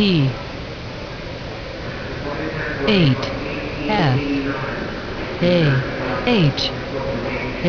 T 8 F A H A